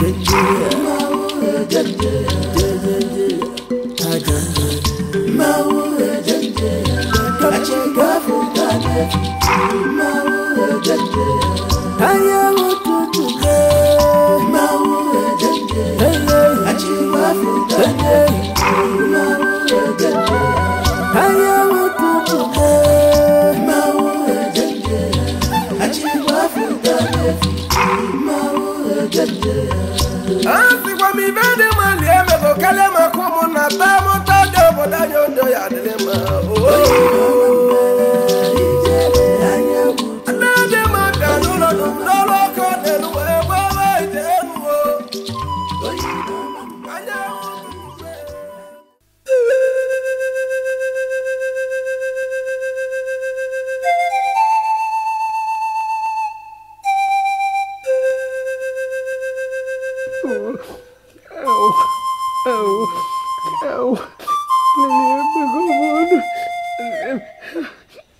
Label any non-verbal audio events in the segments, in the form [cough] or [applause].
revenge.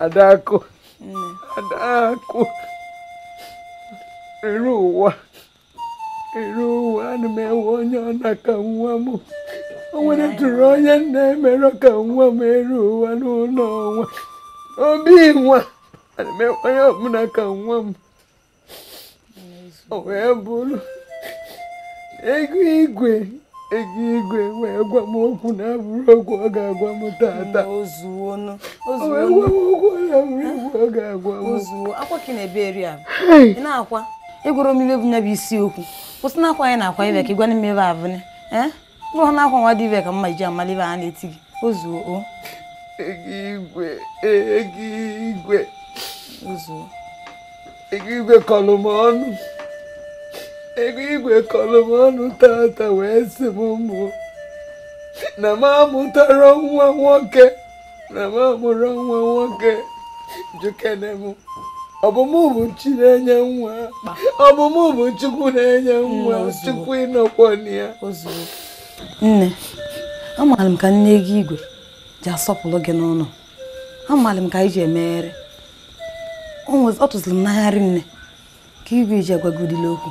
Adako. Adako. Ero wa. Ero wa na me wonya na ka nwa mu. O wele turo onye na ka nwa m ero wa n'ụlọ nwa. Obi nwa. Ana me onye ọbụla ka nwa m. O wee bụrụ. igwe. eji igwe wee gwa m okwu na-abụrụ okwu ọ ga-agwa m tata na-akwa ịgwara m ibe bụ nya bụ isi okwu kwụsị na akwa anyị na-akwa ibe ka ịgwana m ebe abụne bụrụ na akwa nwa dị ibe ka mma iji amala ibe a na-eti gị ozuo o igwe igwe igwe kọlụ m ọnụ ego igwe kọrọ m ọnụ tata wee sị m mụ na m amụtara nwa nwoke na m amụrụ nwa nwoke jukene m ọbụmụ bụ chi na-enye nwa ọbụmụ bụ chukwu na-enye nwa chukwu ịnọkwọna ya nne amaara m ka nne gị igwe ji asọpụrụ gị n'ụlọ amaara m ka anyị ji emegharị ọ tụziri m n'agharị nne ka igwe ji agwagudila okwu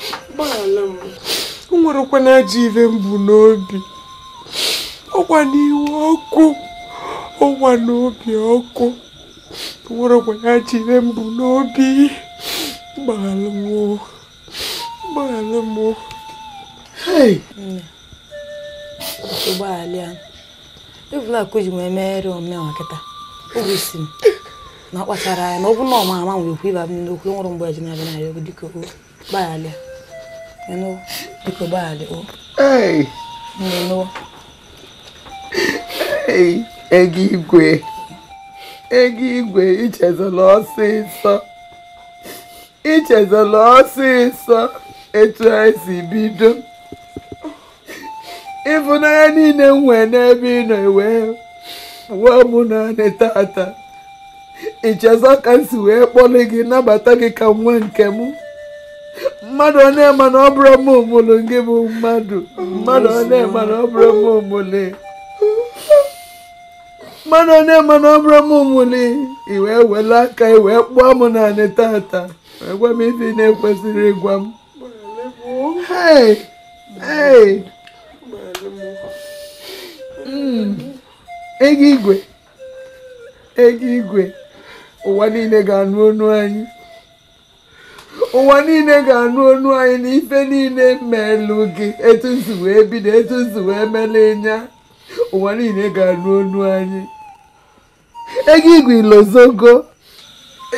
gbaghara m o ajọ ive mbụ n'obi ọkwa n'ihu ọkụ ọkwa n'obi ọkụ o na ajọ ive mbụ n'obi m ụgbọala ji wee meghere m na anya ọ na nwere ịba m n'okwu mgbe e Eno, biko gbaghara o. Ee. Ee, ego igwe. Ego igwe ichezola ọsịsọ. Ichezola ọsịsọ etu anyị si bido. Ịfụnanya niile m nwee n'ebe ị nọ ewee wee mụ naanị tata. Ichezọ ka m si wee kpọlị gị nabata gị ka nwa nke m. mmadụ ọ na-eme na ọ bụrụ m omole gị bụ mmadụ mmadụ ọ na-eme na ọ bụrụ m omole mmadụ ọ na-eme na ọ bụrụ m omole i wee wele aka i wee kpụọ m naanị taata wee gwa m ife na-ekwesịrị ịgwa m hei hei hmm. ego igwe ego igwe ụwa niile ga-anụ ọnụ anyị ụwa niile ga-anụ ọnụ anyị na ife niile melụ gị etu nsi wee bido etu nsi wee mele nya ụwa niile ga-anụ ọnụ anyị ego igwe ilozogo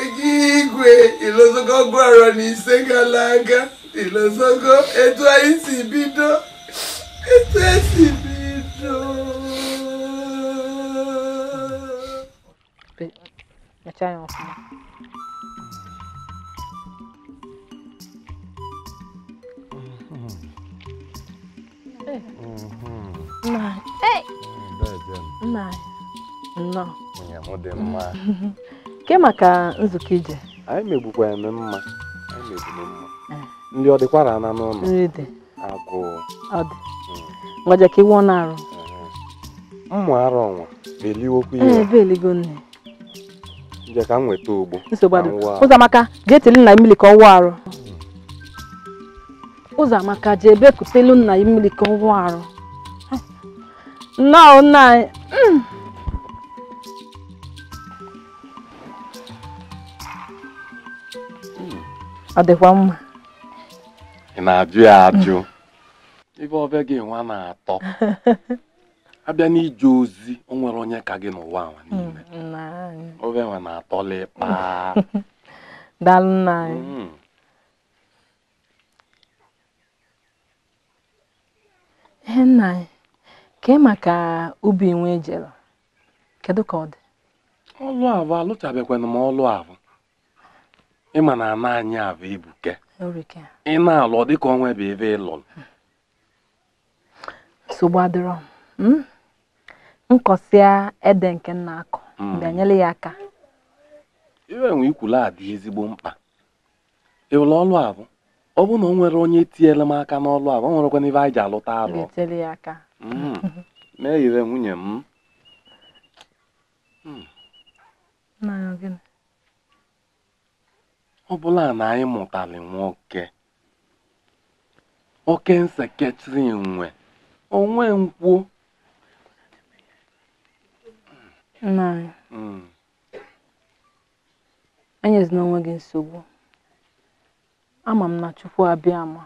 ego igwe ilozogo gwara na ise gara aga ilozogo etu anyị si bido etu esi bido Achaya ọfụma nke maka nzukọ ije anyị mma ndị ọ dịkwara n'ụlọ nri dị agụụ ọ dị hmm. ka iwe na-arụ arụ ọnwa beliwokwa ihe ebe eligo ka nweta ogbo nsogbu ụzọ maka ga na mmiri ka ọ wụ arụ ụzọ amaka jee bekutelu nna ya mmiri ka ọ wụọ arụ nọ nna anyị mm. ọ dịkwa mma ị na-ajụ ya ajụ ebe ọbịa gị nwa na-atọ [laughs] abịa n'ije ozi o nwere onye ka gị n'ụwa nwa niile mm, ọbịa nwa na-atọla ịkpa [laughs] daalụ nna anyị mm. Ihe nna anyị, kee maka ubi nwe ejere, kedu ka ọ dị? Ọlụ abụ alụchabekwana m ọlụ abụ. Ịma na ana anyị abụ ibuke. Ị na-alụ ọ dịka onwe bụ ebe ị lụrụ. Nsogbu adịrọ hmm? Nkọsịa ede nke nna akọ hmm. bịanyela ya aka. Iwe nwe ikwula adị ezigbo mkpa. Ịlụ ọlụ abụ ọ bụrụ na o nwere onye tinyere m aka n'ọlụ a ọ nwerekwana ibe anyị ji alụta alụ hmm. meghire nwunye m hmm. ọ bụla na anyị mụtara nwoke oke nseketiri nwe onwe nkwuo hmm. enyezina onwe gị nsogbu ama m na Chukwu abịa ma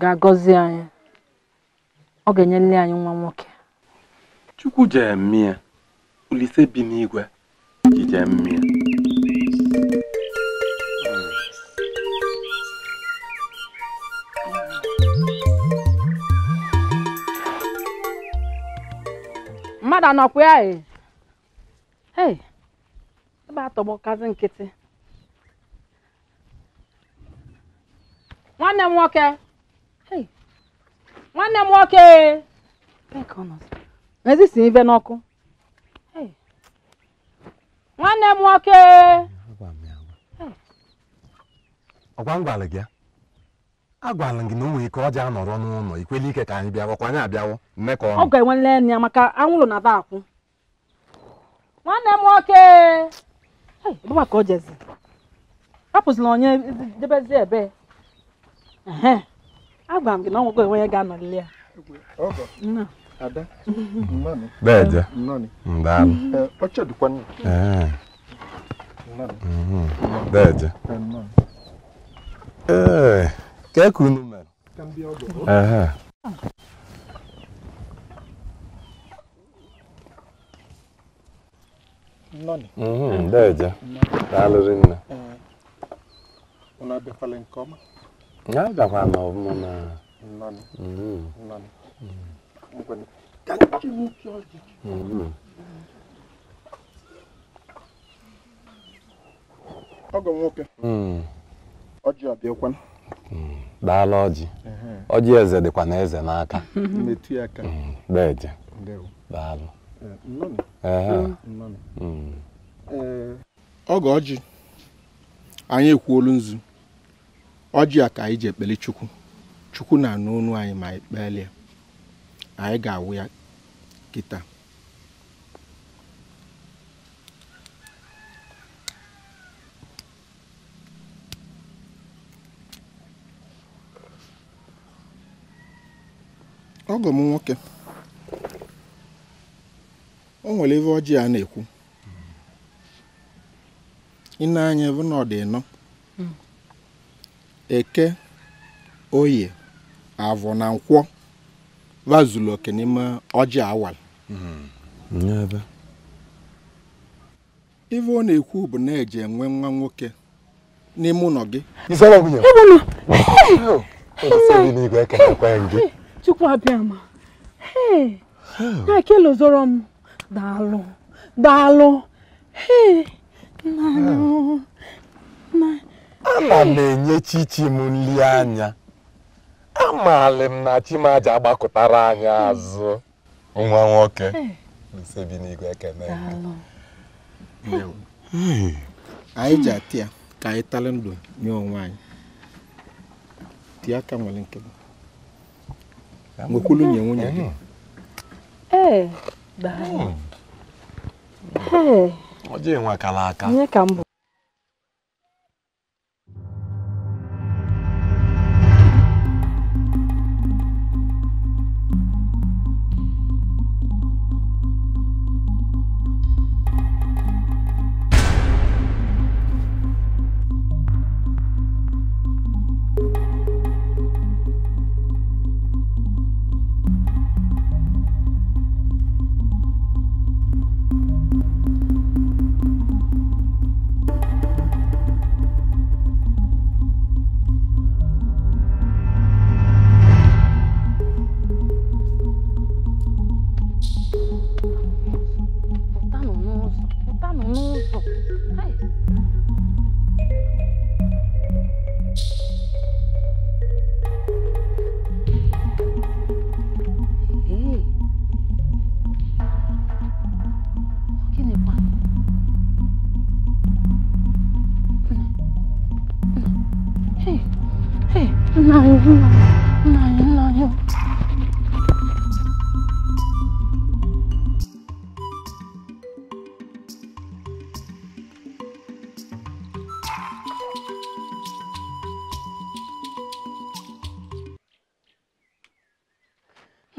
ga-agọzi anyị ọ ga nle anyị nwa nwoke Chukwu jee mmịa Olise bi n'igwe ji jee mmadụ anọkwa ya ee, ebe atọgbọkazị nkịtị nwanne m nwoke nwanne m nwoke ezisi ibe n'ọkụ nwanne m nwoke ọgwa m gị agwala gị na o nwere ike ọja anọrọ n'ụlọ ikwela ike ka anyị bịawa ka anyị abịawa mmekọ ọ ga-enwele enwe ya maka anwụrụ na akwụ nwanne m nwoke ka o jezi apụzila onye debezi ebe agwara m gị na ọ enwe ya ga ya nke ọma. agakwa m ọfụma na ọgọ nwoke ọjị ọbịakwa Daalụ ọjị ọjị eze dịkwa na eze n'aka metụ [laughs] ya aka deje daalụ ọgọ oji. anyị ekwuolu nzu ọjị a ka anyị ji ekpele chukwu chukwu na-anụ anyị ma anyị ya anyị ga-awụ ya kita. ọgọ m nwoke o nwere ebe ọjị a na-ekwu ị na-anya ebe na Eke, Oye, Avọ na Nkwọ wazụlụ oke n'ime ọjị awal ife ọ na-ekwu bụ na eje enwe nwa nwoke n'ime ụlọ gị chukwu abịama na-ekelozoro m daalụ daalụ nna nna ana m enye chichi m nri anya amalị m na chimaja agbakọtara anyị azụ nwa nwoke ekene anyị ji ka anyị ndụ nye onwe anyị aka nwere nke nwekwulu nye nwunye gị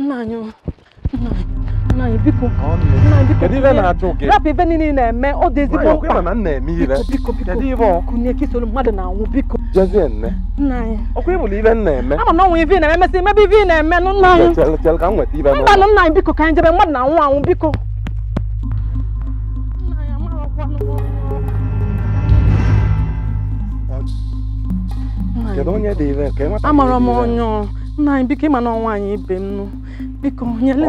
nna anyị nna anyị biko nna anyị biko rapụ ibe niile na-eme ọ dị ezigbo mkpa biko biko kunye ka isoro mmadụ na-anwụ biko nna anyị ama na ọnwụ ive na-eme mesị mebe ive na-eme nụ nna anyị mba nụ nna anyị biko ka anyị jebe mmadụ na-anwụ anwụ biko amara m onye nna anyị biko ịma na ọnwa anyị ibe m nụ biko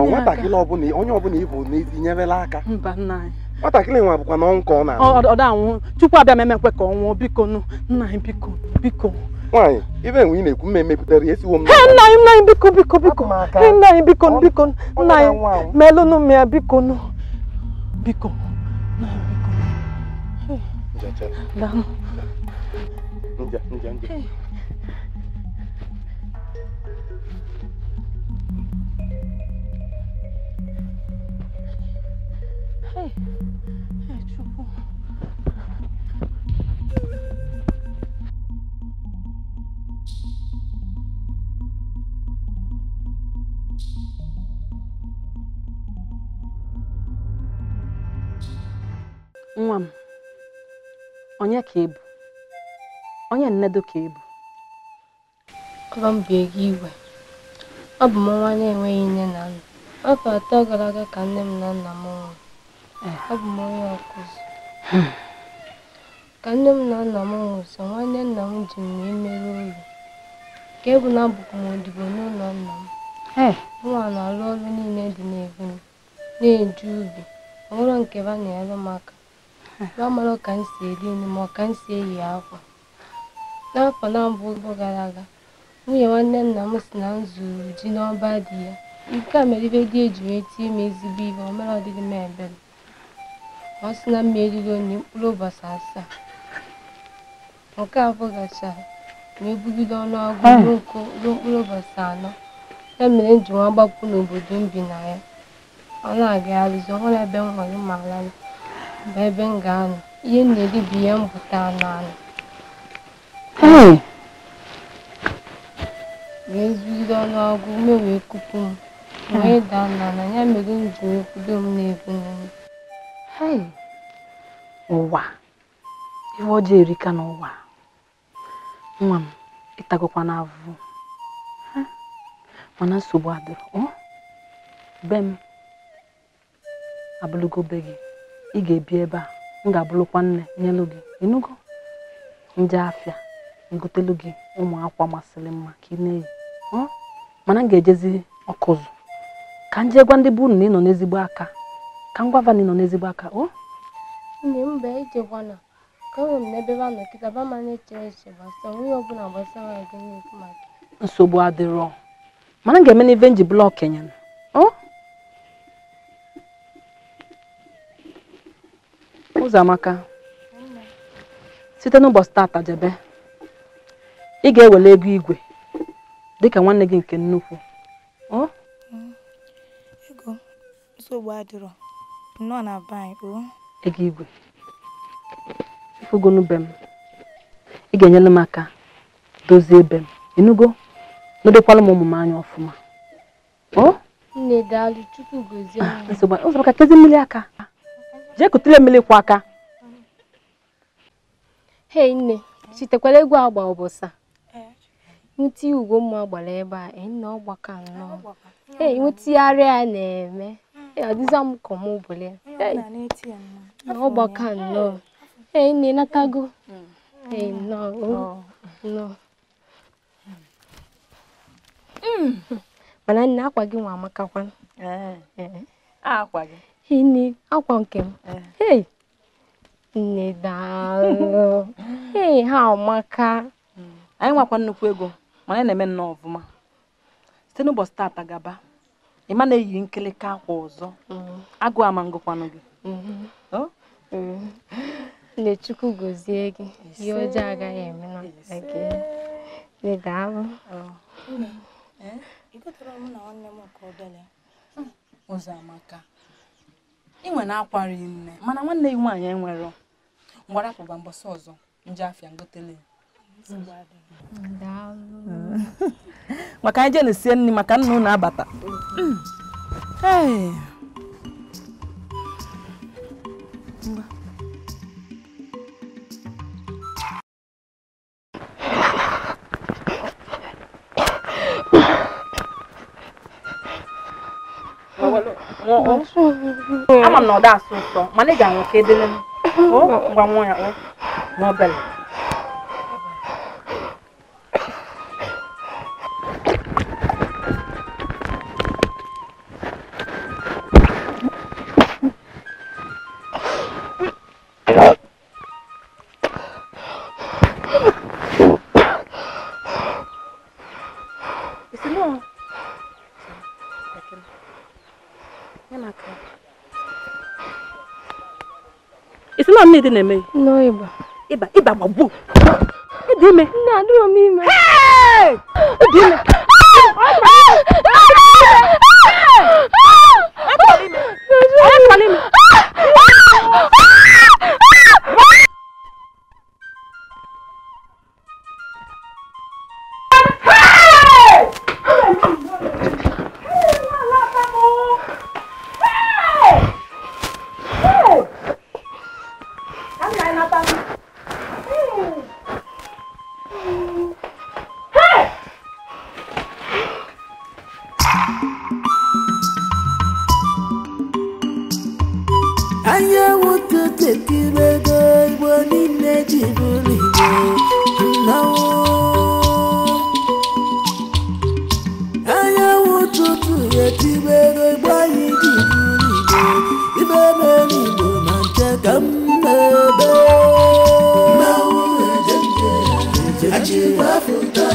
nwatakịrị ọbụla onye ọbụla ịbụ na-etinyerela aka nwatakịrị nwa bụkwa na ọnwụ ka ọ na-anwụ ọ da-anwụ chukwu abịa memekwe ka ọ nwụọ biko nụ nna anyị biko biko nwaanyị ibe enwe ị na-ekwu mme mepụtara esiwo m nna anyị nna anyị biko biko biko nna anyị biko biko nna anyị melụnụ m ya biko nụ biko nna biko Nwa m, onye ka ị bụ? Onye nnedo ka ị bụ? Ọba m bie gị igwe Ọ bụ m nwa na-enweghị nne na nna. Afọ atọ gara aga ka nne m na nna m nwụrụ. abụ m onye ọkụzi ka nne m na nna m nwụsị nwanne nna m ji m wee mere ka ebu na abụkwa m odibo n'ụlọ nna m nwa na-alụ ọrụ niile dị n'ebu m na-eju ubi ọhụrụ nke ba na-ere m aka amara ka m si eri nri ma ka m si eyi akwa n'afọ na-abụ gara aga nwunye nwanne nna m si na m zụrụ ji n'ọba di ya nke a mere ibe dị eji wee tie m ezigbo ihe ọ mere ọdịdị m ebere ọ sị na mma erigo mkpụrụ ụbọchị asaa nke afọ gachara ma ebugide ọnụọgụ hmm. ruo mkpụrụ ụbọchị anọ ya mere m ji nwa gbapụ n'obodo m bi na ya ọ na-agagharịzi ọhụrụ ebe m ma ala bụ ebe m ga-anọ ihe m na-eri bụ ihe m anụ anụ hmm. wee ọnụọgụ ume wee kupu m wee daa na ya mere m ji wee kwudo m na-ebu n'elu ụwa ihe ọjọọ erika n'ụwa nwa m ịtagokwa na mana nsogbu adịrọ be m abụlụgo be gị ị ga-ebi ebe a m ga-abụlụkwa nne nyelụ gị ịnụgo nje afịa ngotelu gị ụmụ akwa masịrị mma ka ị na-eyi mana m ga-ejezi ọkụzụ ka m jee gwa ndị bụ unu nọ n'ezigbo aka ka ngwa na nọ n'ezigbo aka o Ndị mba ije ijekwana ka enwe m n'ebe ba nọ kịta ba ma na-eche eche onwe onye ọbụla gbasara gị n'ekwu maka nsogbu adịrọ mana m ga-eme n'ive nji blọk nyana o amaka. site n'ụbọchị tata jebe ị ga-ewele ego igwe dịka nwanne gị nke nnukwu ego nsogbu adịrọ nọ na o? ego igwe ifugonu be m ị ga-enyere m aka dozie be m enugo nodekwala m anya ọfụma ah, ụzọ ka kezi mmiri aka jee mmiri aka hei nne egwu agba a ọgbaka na-eme adịza m ka ọmụbụli na ọgbaka nnọọ ee na natago ee nnọọ mana nne akwa gị nwa amakakwa eh, eh. nne akwa nke m eh. nne daalụ [laughs] ee ha amaka mm. anyị nwakwa nnukwu ego mana na-eme nnọọ ọfụma site n'ụbọchị taata gaba ịma na eyiri nkịlịka akwa ọzọ mm-hmm. agụ ama ngụkwanụ gị mm-hmm. Mm-hmm. nne chukwu gozie gị ihe ọjọọ agaghị eme na gị daalụ ụzọamaka ị hmm, nwere akwarị nne mana nwanne gị nwaanyị enwero akwụba mbọsị ọzọ nje afịa ngotele maka anyị jee na sie nri maka nna unu abata ama m na ọ da asụ ụtọ mana ị ga-anwụ ka edele m gwa nwa ya n'obele dị na-eme ịba ịba ịba gbagbuo ịdị ime nne adịrọ m ime ịdị ime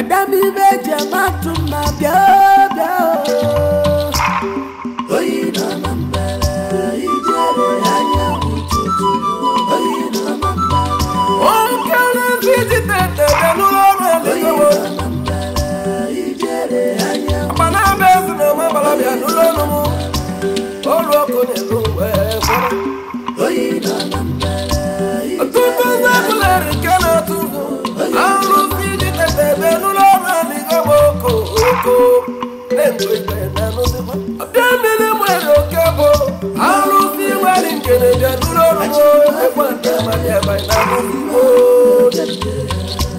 Adami beje matuma bia bia ọbịa mmiri nwere oke bụ arụsị nwere nke na-eje n'ụlọ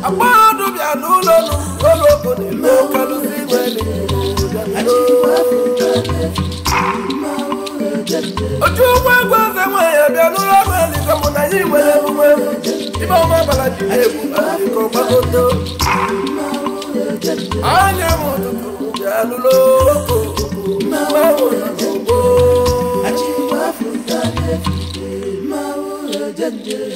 agbahadụ bịa n'ụlọ n'ụlọụlọogo otu egwu bịa n'ụlọ ọrụ eligo mụ na anyị ọma ji anya m ụtụtụ ṣàánú lóko máa wò lọ́gbọ́. àjíwá fún tàlẹ́ fìdí máa wò lọ́jọ́ jẹ́.